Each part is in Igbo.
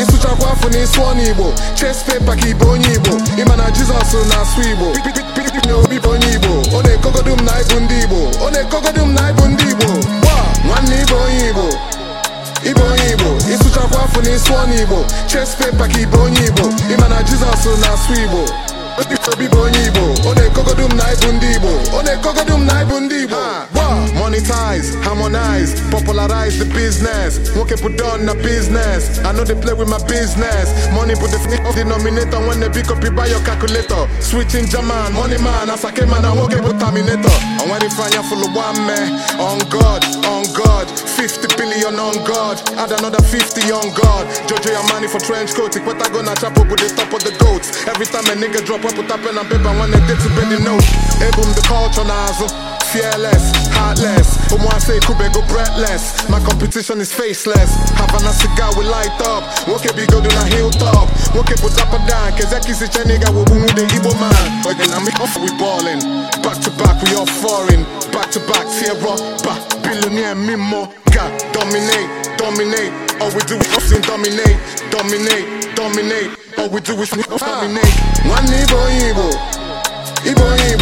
ịsụchakwa afọ igbo ches pepa ka onye igbo ịma na jizọs na-asụ igbo na obi bụ onye igbo ọ na-ekogodu m na ịbụ ndị igbo ọ na-ekogodu m na ịbụ ndị Igbo chest paper ka ibe onye Igbo ịma na Jizọs na-asụ Igbo obi bụ onye Igbo ọ na-ekogodum na ibu ndị Igbo ọ na-ekogodum na ịbụ ndị Igbo monetize, harmonize, popularize the business. woke put on the business. I know they play with my business. Money put the f- denominator when they pick up you buy your calculator. Switching German, money man, as I came and I won't get put terminator. And when they find full of one man, on God, on God, 50 billion on God, add another 50 on God. Jojo your money for trench coat, what I gonna chop up with the top of the goats. Every time a nigga drop, I put up pen and paper when they did to bend the note. Hey boom, the culture nozzle. fearless, heartless. say Omuase go breathless. My competition is faceless. Havana cigar we light up. Woke be go na hilltop. Woke put up a down. Kezeki si chaniga wo boom the Igbo man. but Again, I'm off, we ballin'. Back to back, we all foreign. Back to back, Sierra, back. Billionaire, Mimo, God, dominate, dominate. All we do is often dominate, dominate, dominate. All we do is dominate. Ah. One Igbo, Igbo, Igbo, Igbo.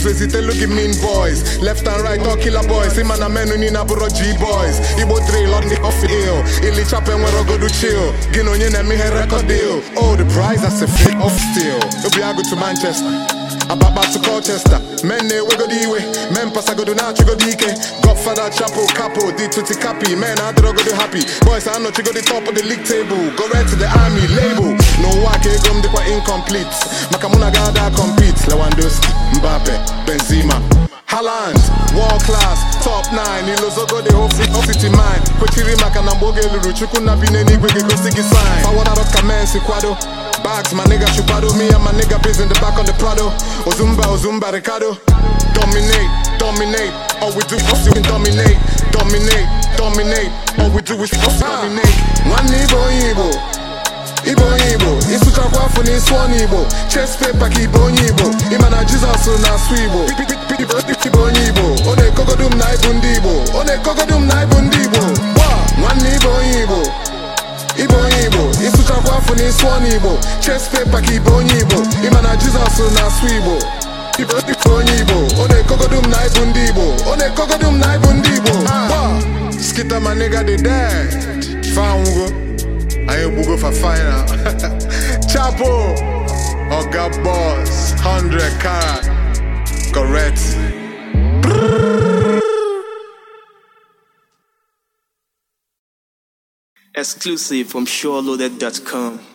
Choose resite look mean boys. Left and right all killer boys. See man a men na G boys. Igbo drill on the off ill. Ili chape nwere go do chill. Gino nye na eme he record deal. Oh the prize that's a fake off still. Obi ago to Manchester. Ababa to Colchester, men ne eh, we go the way, men pass I go ike now, Godfather, Chapo, Capo, D to capi men I do go do happy. Boys, I know go the top of the league table, go right to the army label. No they quite incomplete. Makamuna compete, Haaland world class top 9 ilozogode ofiti mind kwechiri maka na mgbe oge lụrụ na bi n'eluigwe ga-egosi gị sign fawadaro ka men si kwado bags ma nigga chupado me and my nigga biz in the back on the Prado Ozumba, oh, Ozumba, oh, Ricardo Dominate, dominate, all we do is fucking dominate Dominate, dominate, all we do is fucking dominate ah. One Igbo, Igbo ibe onye igbo ịsụchakwa afọ na ịsụ ọnụ igbo ches pepa ka ibe onye igbo ịma na jizọs na-asụ igbo ibe onye igbo ọ na-ekogodu m na ịbụ ndị igbo ọ na-ekogodu m na ịbụ ndị igbo gba nwanne ibe onye igbo ibe onye igbo ịsụchakwa afọ na ịsụ ọnụ igbo ches pepa ka ibe onye igbo ịma na jizọs na-asụ igbo ibe onye igbo ọ na-ekogodu m na ịbụ ndị igbo ọ na-ekogodu m na ịbụ ndị igbo skita ma nigga dị dead fango we go for final. Chapo, Oga Boss, 100 carat, correct. Exclusive from SureLoaded.com.